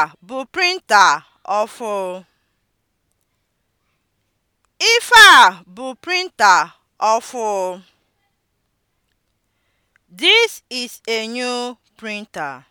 Nke a bụ printa ọfụụ? Ife a bụ printa ọfụụ? This is a new printer.